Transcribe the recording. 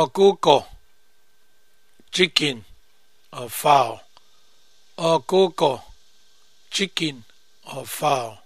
ọkụkọ chicken or fowl ọkụkọ chicken or fowl